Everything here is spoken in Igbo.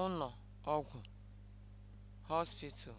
ụnọ̀ ọgwụ̀ (hospital)